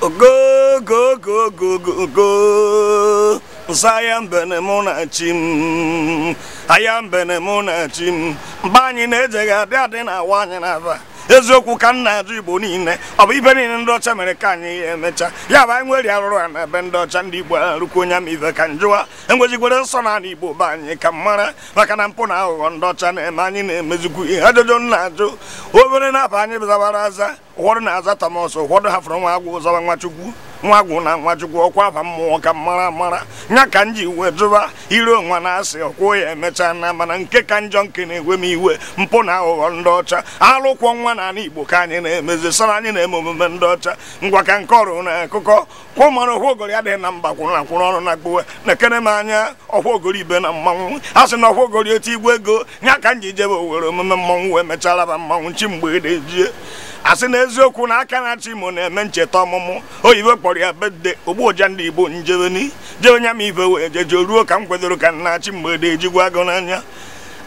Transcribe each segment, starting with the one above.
ogogogogogogo nsa ya mbene mụ na chi m na chi m mgbe anyị na adị na awa anyị n'aba eziokwu ka nna na-ajụ igbo niile ọ bụ ibe niile ndị ọcha mere ka anyị ya emecha ya bụ anyị nwere arụrụ a na ebe ndị ọcha ndị igbo arụkwu onye ama ka njụwa enwejikwere nsọ na ala igbo be anyị ka mmara maka na mpụ na aghụghọ ndị ọcha na-eme anyị na-emezikwu ihe ajụjụ na-ajụ obere na-aba anyị zabara aza ụfọdụ na-aza tamas ụfọdụ hafụrụ nwa agwụ zọba nwa chukwu nwa gwụ na nwa chukwu ọkwa ba mmụọ ka mara mara nya ka m ji wee jụba ire onwa na asị ọkwụ ya emechaa na mana nke ka njọ nke na ewe m iwe mpụ na aghụghọ ndị ọcha alụkwọ nwa na ala igbo ka anyị na-emezi sara anyị na-eme omume ndị ọcha ngwa ka nke ọrụ na akụkọ kwụ mara adịghị na mba kwụrụ akwụrụ ọrụ na gbuwe na-ekere m anya ọhụogori ibe na mmanwụ a sị na ogori otu igwe ego nya ka m ji jebe owere omume mmanwụ wee mechara mmanwụ chi mgbe e asị na eziokwu na aka na-achị imo na-eme ncheta ọmụmụ oyibo kpọrọ ya bedde ogbuoja ndị igbo njebeni jebenya m ibe wee jeje ruo ka m kwedoro ka na-achị mgbede ejigwa agụ n'anya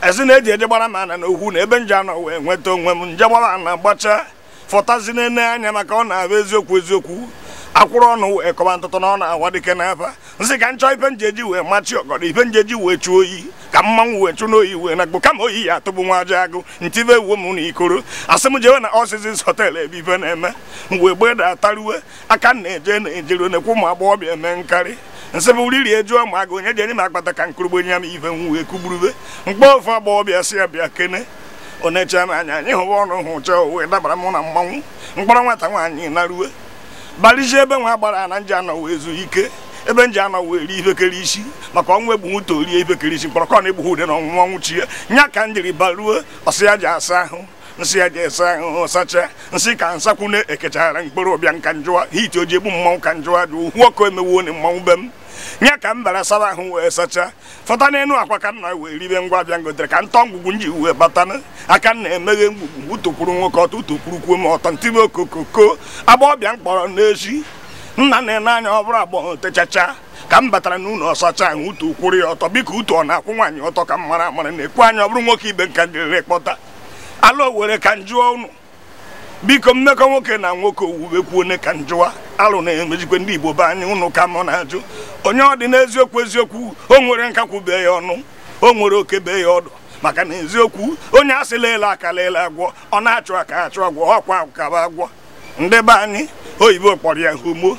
esi na eji eje gbara m ana na okwu na ebe nje anọ wee nweta onwe m nje gbara ana gbacha fọtazi n'ene anya maka ọ na-abụ eziokwu eziokwu akwụrụ ọnụ wee kọba ntụtụ na ọ na-awa dike n'aba nsị ka ife nje njeji wee machi ife nje njeji wee chuo oyi ka mmanwụ wee chụ n'oyi wee na gbo kama oyi ya atụbụ nwa aja agụ ntive uwe m na ikoro asị m jewe na ọsịsịs hotel ebe ife na-eme mgbe gbe da ataruwe aka na-eje na-ejere nekwu ụmụ agbọghọbịa eme nkarị nsị bụ riri ejuo ma agụ onye ji enye m akpata ka nkurugbo nye m ife m kugburube mkpọ ofe agbọghọbịa si ya bịa kene onecha m anya anyị hụwa ọnụ hụ chọọ uwe dabara m na mmanwụ mkpọrọ nwata nwaanyị na ruwe balizie ebe nwa gbara na nje anọ wee zuo ike ebe nji anọwụ eri ibekere isi maka ọnwụ egbunwuto rie ibekere isi mkpọrọ kọna egbughu ude na ọnwụnwa nwụchie nya ka m jiri baruo ọsị ya ji asa ahụ nsị ya ji esa ahụhụ sacha nsị ka nsakwune ekechara mkpụrụ ụbịa nka njụwa hiti oji egbu mmanwụ ka njụwa dị ukwu ọkụ emewuo na mmanwụ be m nya ka m bara saba ahụ wee sacha fọta n'elu akwa ka nna wee ribe ngwa abịa ngotere ka ntọ ngwugwu nji wee batana aka na emeghe ngwugwu utokwuru nwoke ọtọ utokwuru kwuo ma ọtọ ntime okokoko agba ọbịa mkpọrọ n'echi nna na-ene anya ọ bụrụ agbọghọ techacha ka m batara n'ụlọ ọsacha ahụ utu kwụrụ ya ọtọ biko utu ọ na-akwụ nwaanyị ọtọ ka m mara amara na-ekwu anya ọ bụrụ nwoke ibe nka dịrịrị kpọta ala owere ka m jụọ ụnụ biko mmekọ nwoke na nwoke owuwekwu ne ka njụwa alụ na-emejikwe ndị igbo be anyị ụnụ ka mụ na-ajụ onye ọ dị n'eziokwu eziokwu o nwere bee ya ọnụ o nwere oke be ya ọdụ maka na eziokwu onye a sịla ele akala agwọ ọ na-achụ aka achụ agwọ ọkwa akaba agwọ ndị be anyị oyibo kpọrọ ya homo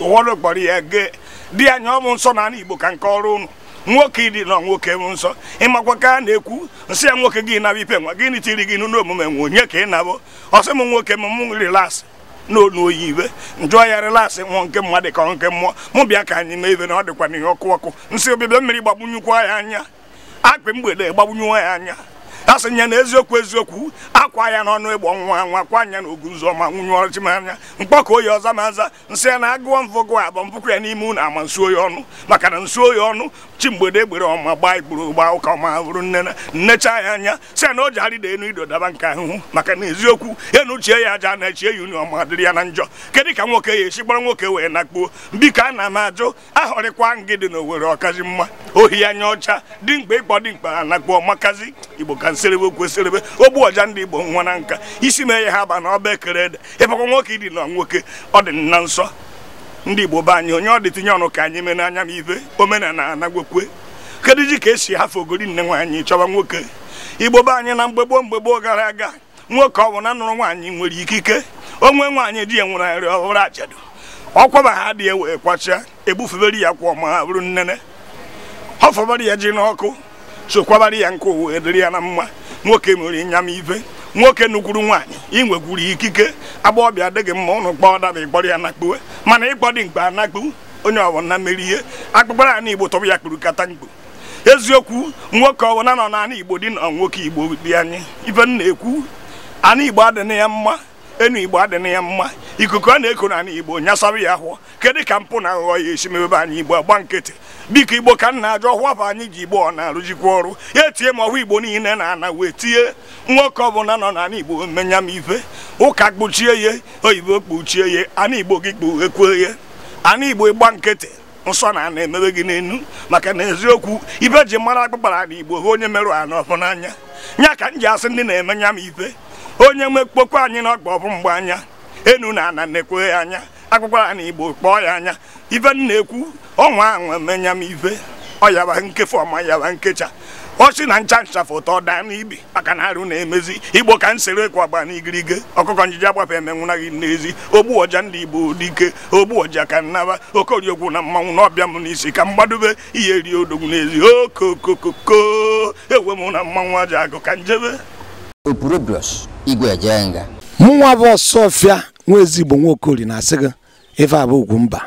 ụwọrụ kpọrọ ya gee di ya ọ bụ nsọ na ana igbo ka nke ọrụ ụnụ nwoke ịdị nọ nwoke bụ nsọ ịmakwa ka a na-ekwu nsị ya nwoke gị naba ipe nwa gịnị tiri gị n'ụlọ omume nwe onye ka ị nabụ ọsị m nwoke m m rilasị n'onu oyi iwe njụọ ya rilasị nwụọ nke mmadụ ka nke mmụọ mụ bịa ka anyị mee ibe na ọ dịkwa n'ihe ọkụ ọkụ nsị obibịa mmiri gbagbunyekwaa ya anya akpị mgbede gbagbunyewa ya anya ha sị ya na eziokwu eziokwu akwa ya n'ọnụ ịgbọ nwa nwa kwa anya na oguzoma nwunye ọchịmanya mkpọkọ oyi ọza ma nza nsị ya na agụọ mvọgụ abọ mpụkụ ya n'ime ụlọ ama nsuo ya ọnụ maka na nsuo ya ọnụ chi mgbede egbere ọma gbaa igburu gbaa ụka ọma bụrụ nne nnecha ya anya sị ya na o ji arịda enu ido daba nke ahụhụ maka na eziokwu ya na uchie ya aja na-echie ya ọma dịrị ya na njọ kedụ ka nwoke ya esi gbara nwoke wee nakpuo biko a na m ajụ ahọrịkwa ngị dị na owere ọkazi mma ohi anya ọcha dị mkpa ịkpọ dị mkpa anakpuo makazi igbo ka nsị okweserebe okweserebe ogbu ọja ndị igbo nwa na nka isi mee ya ha aba na ọba ekere ede ịbakwa nwoke ịdị na nwoke ọ dị na nsọ ndị igbo be anyị onye ọ dị tinye ọnụ ka anyị mee n'anya m ibe omenala anagwekwe kedu ji ka esi hafe ogori nne nwaanyị chọba nwoke igbo be anyị na mgbe gboo mgbe gboo gara aga nwoke ọ bụ na nụrụ nwaanyị nwere ikike onwe nwaanyị di ya nwere nrị ọhụrụ ajadu ọkwaba ha dị ya wee kwachaa egbufebere ya kwa ọma ha bụrụ nnene ọ fọbara ya ji n'ọkụ sokwabara ya nke uwe dịrị ya na mma nwoke mere ịnyam ive nwoke nukwuru nwaanyị inwekwuru ikike agba ọbịa adịghị mma ụnụ kpọọ daba ịkpọrọ ya nakpuwe mana ịkpọ dị mkpa anakpu onye ọwọna mere ihe akpụkpara ana igbo tọbụ ya kpuru kata mkpu eziokwu nwoke ọwọna nọ naanị igbo dị na nwoke igbo dị anyị ife m na-ekwu ana igbo adịna ya mma enu igbo adịna ya mma ikuku a na-eko na igbo nyasara ya hụ kedu ka mpụ na aghụghọ ya esi mebe anyị igbo agba nkịtị biko igbo ka nna ajọ hụọ bụ anyị ji igbo ọ na-arụjikwa ọrụ ya etinye ma ọhụ igbo niile na-ana wee tinye nwoke ọbụla nọ n'ala igbo menya m ife ụka kpuchie ya oyibo kpuchie ya ana igbo gị kpughekwe ya ana igbo ịgba nkịtị nsọ na ana emebe gị n'enu maka na eziokwu ibe ji mara akpụkpara na igbo hụ onye merụ ana ọfụ n'anya nya ka m ji asị ndị na-emenya m ife onye nwe anyị na ọgba ọbụ mgbe anya enu na ana na-ekwe ya anya akwụkwọ ya na igbo kpọọ ya anya ife m na-ekwu ọnwa anwa menya m ife ọyaba nkefu ọma yaba nkecha ọsị na ncha ncha foto daa n'ibi maka na arụ na-emezi igbo ka nsere agba n'igirige ọkụkọ njiji agbafe emenwụna gị n'ezi ogbu ọja ndị igbo dike ogbu ọja ka nnaba okoriokwu na mmanwụ n'ọbịa m n'isi ka mgbadobe ihe rie odogwu n'ezi okokokoko ewe m na mmanwụ aja agụ ka njebe igwe jenga mụnwa bụ ọfịa nwa ezigbo nwaokori na-asị gị ife abụ mba